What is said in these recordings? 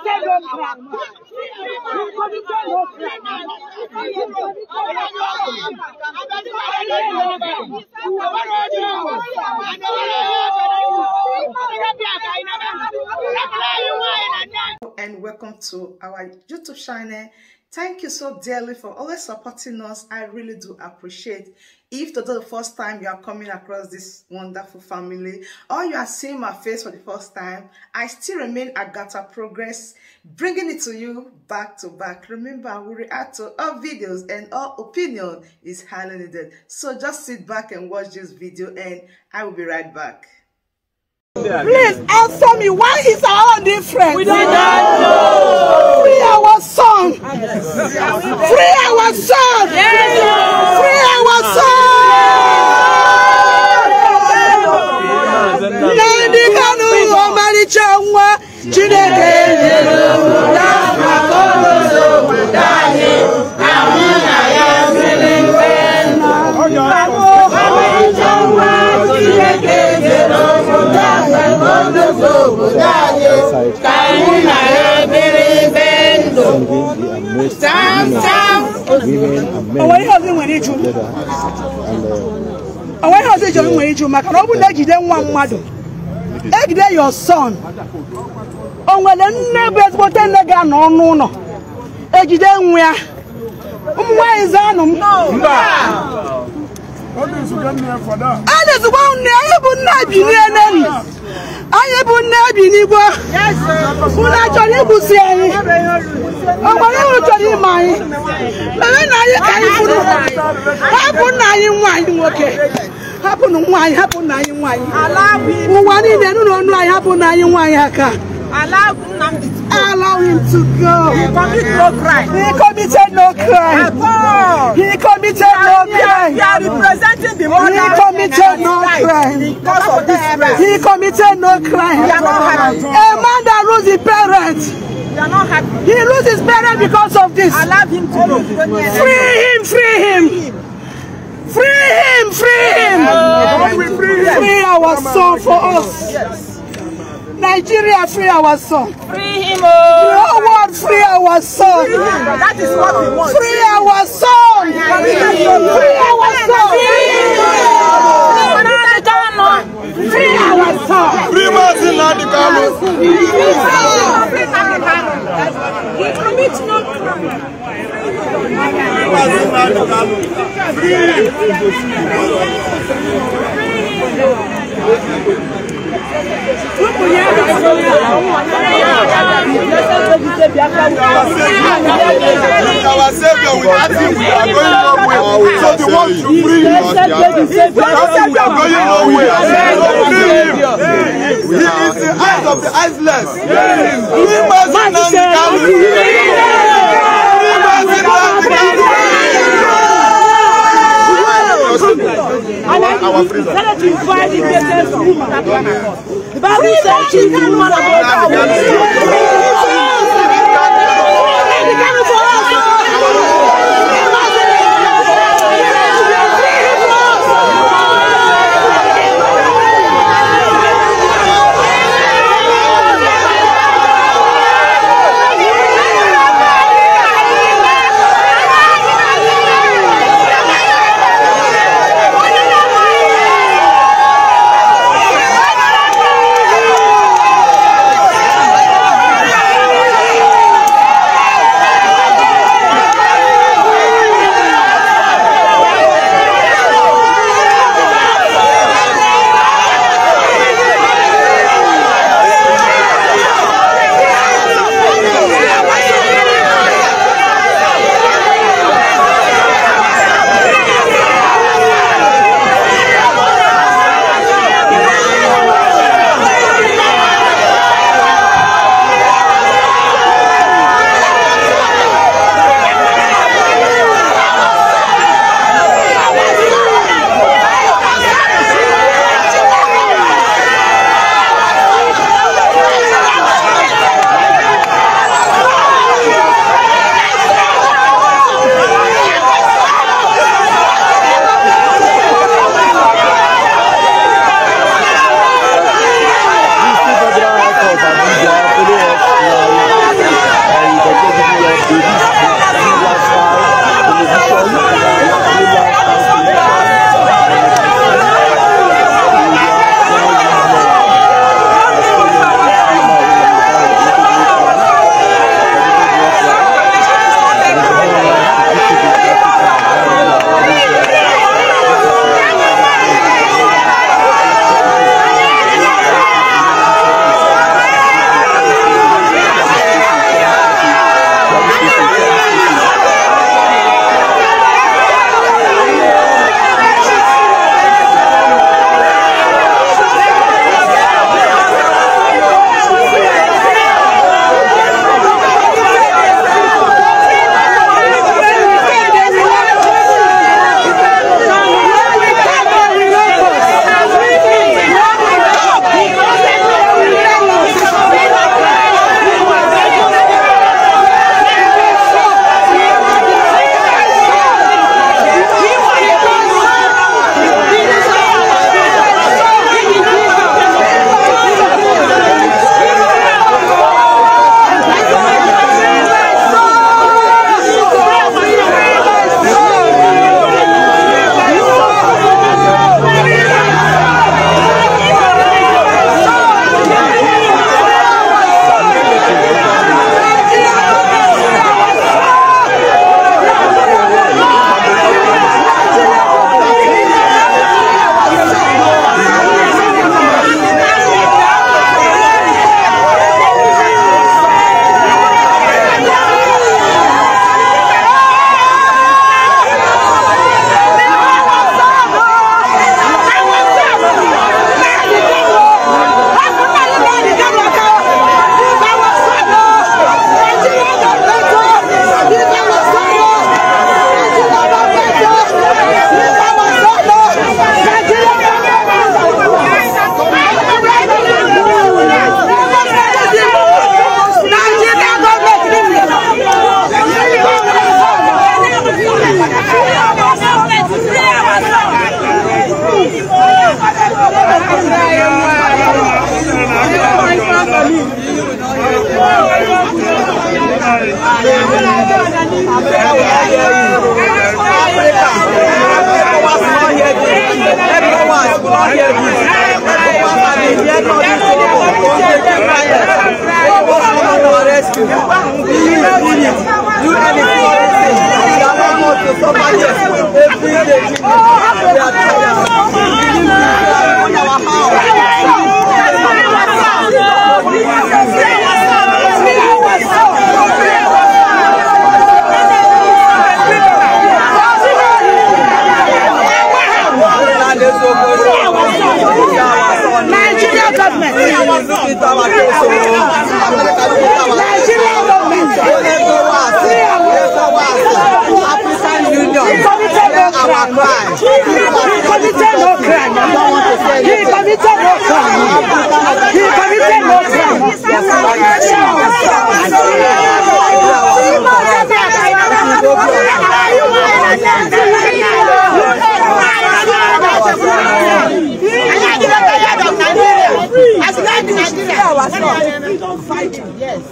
oníkẹ́ ló fà mọ́ And welcome to our YouTube channel. Thank you so dearly for always supporting us. I really do appreciate. If this is the first time you are coming across this wonderful family or you are seeing my face for the first time, I still remain Agatha Progress, bringing it to you back to back. Remember, we react to all videos and all opinion is highly needed. So just sit back and watch this video and I will be right back. Please answer me. Why is our own different? We don't know. Free our son. Free our son. Free our son. onwe ihe ọzọ iji nwere iju maka na ọ bụ na ejide nwa mmadụ egide ya son o nwere nne bụ ezigbote nne ga-anọ ọnụ ụlọ ejide nwa ya ụmụ nwaanyị zanụ m a na-ezigbo nne anyị bụ nne bineneri anyị bụ nne bi n'igwe a chọrọ igbusi anyị ọ gwara anyị ime anyị mere na anyị ka anyị bụrụ hapụ nna anyị nwa anyị nwoke hapụnụ nwa anyị hapụ nna anyị nwaanyị ụwa niile nụ na ọnụ anyị hapụ nna anyị nwaanyị aka Allow him, allow him to go. He committed no crime. He committed no crime. Oh. He committed no crime. We are representing the mother. He committed no crime. Because of this. He committed no crime. A man that loses his parents are not happy. He loses better because of this. Allow him to go. Free him, free him. Free him, free him. Free our son for us. Nigeria, free our son. Free him, oh. The whole free our son. Oh. That is what we want. Free our son. Free our son. Free our son. Free our son. Free our son. Free our son. Our Savior without him we are going nowhere. So the one to free him. him we are going nowhere. He is the eyes of the eyesless. He must not carry. our freezer. Let us invite the greatest woman that can Bible says she's one of our Every day, they are tired. They are tired. Our house. not crime. He committed no crime. He committed no crime. He committed no crime. As Nigeria, we don't fight. Yes.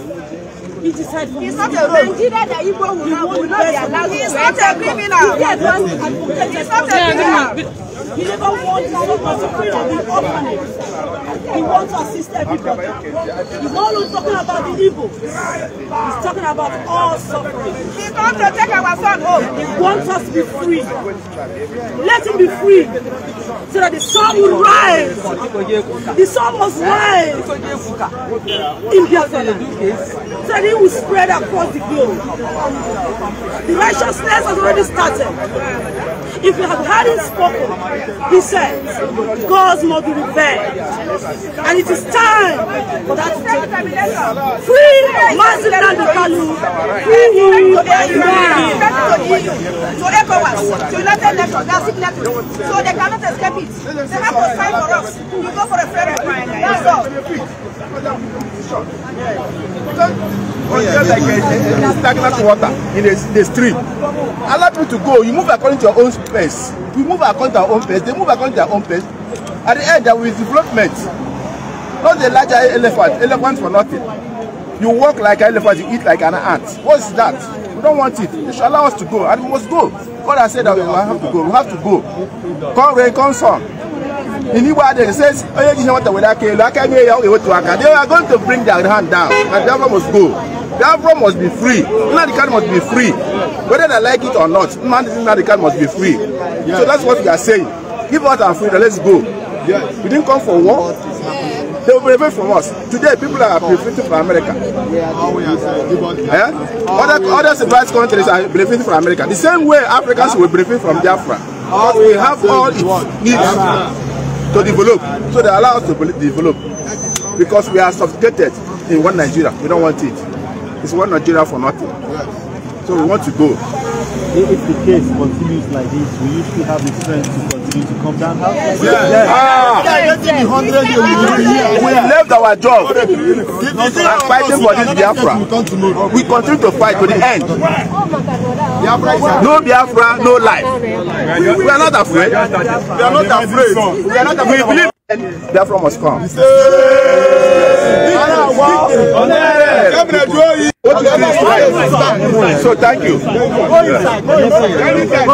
It's not a road. Nigeria that Igbo will not, be allowed. It's not a criminal. It's not a criminal. He never wants his own person for the orphanage. He wants to assist everybody. He's not only talking about the evil. He's talking about all suffering. He comes to take our son home. He wants us to be free. Let him be free so that the sun will rise. The sun must rise in Biafra so that it will spread across the globe. The righteousness has already started. If you have heard him spoken, He said, Gods must be revenged. And it is time for that to take place. Free Mazin Nandikalu. Free him to To ECOWAS, to United Nations, they are signatories. So they cannot escape it. They have to sign for us. You go for a fair referendum. That's all. Oh, yeah. It's like a, a, a stagnant water in the, the stream allow people to go you move according to your own pace we move according to our own pace they move according to their own pace at the end there will be development not the larger elephant elephant for nothing you walk like an elephant you eat like an ant what is that we don't want it they should allow us to go and we must go God has said that we have to go we have to go come rain come sun in Igbo they say onye ji ihe nwata were aka elu aka they are going to bring their hand down and the government must go. Biafra must be free. Nnamdi must be free. Whether they like it or not, Nnamdi must be free. Yeah. So that's what we are saying. Give us our freedom. Let's go. Yes. We didn't come for war. They will prevent from us. Today, people are benefiting from America. Yeah? Other, other civilized countries are benefiting from America. The same way Africans will benefit from Biafra. because we have all it needs to develop. So they allow us to develop. Because we are subjugated in one Nigeria. We don't want it. It's one Nigeria for nothing. Yes. So we want to go. If the case continues like this, will you still have the strength to continue to come down? Yes. Yes. yes. Ah. yes. yes. yes. We left our job and fighting for this Biafra. We continue to fight to the end. Oh no Biafra, no life. We, we are not afraid. We are not afraid. We are not afraid. We believe Biafra must come. So thank you. Go inside. Go inside. Go inside.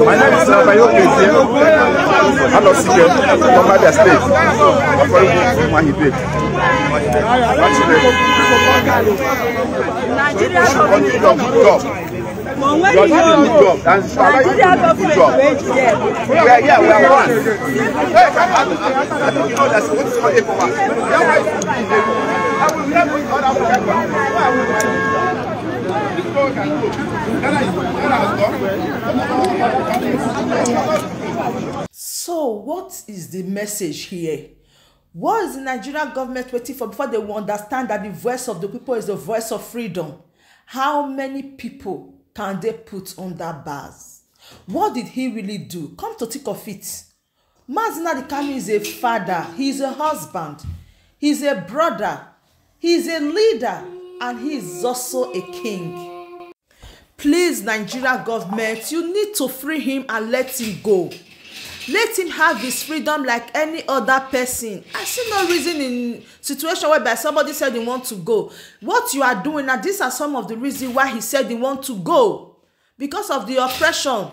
My name is Abayo Kete. I'm not secret. From Abia State. I'm from Mahibet. Nigeria. Nigeria. You're doing a job. And Shala, you're doing a job. We we are one. Hey, come on. I think know that's what it's for that I will never go. So, what is the message here? What is the Nigerian government waiting for before they will understand that the voice of the people is the voice of freedom? How many people can they put under bars? What did he really do? Come to think of it. Mazi Dikami is a father, he's a husband, he's a brother, he's a leader, and he is also a king. Please, Nigeria government, you need to free him and let him go let him have his freedom like any other person i see no reason in situation whereby somebody said he want to go what you are doing now these are some of the reasons why he said he want to go because of the oppression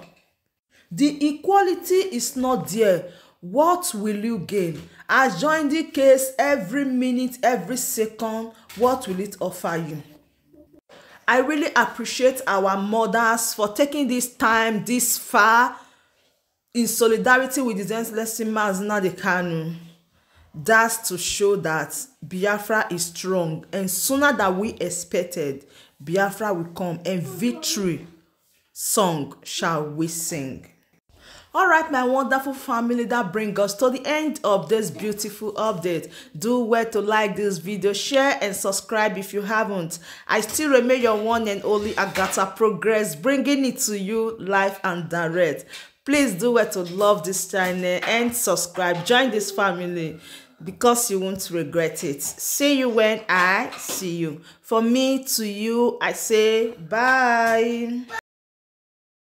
the equality is not there what will you gain I join the case every minute every second what will it offer you i really appreciate our mothers for taking this time this far in solidarity with the his endless Mazinadi Kanu, that's to show that Biafra is strong and sooner than we expected, Biafra will come and victory song shall we sing. All right, my wonderful family, that brings us to the end of this beautiful update. Do well to like this video, share and subscribe if you haven't. I still remain your one and only Agata Progress, bringing it to you live and direct please do well to love this channel and subscribe join this family because you won't regret it see you when i see you for me to you i say bye